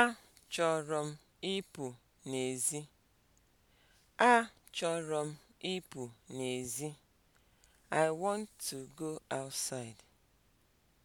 Achọrọ m ịpụ n'èzí. Achọrọ m ịpụ n'èzí. I want to go outside.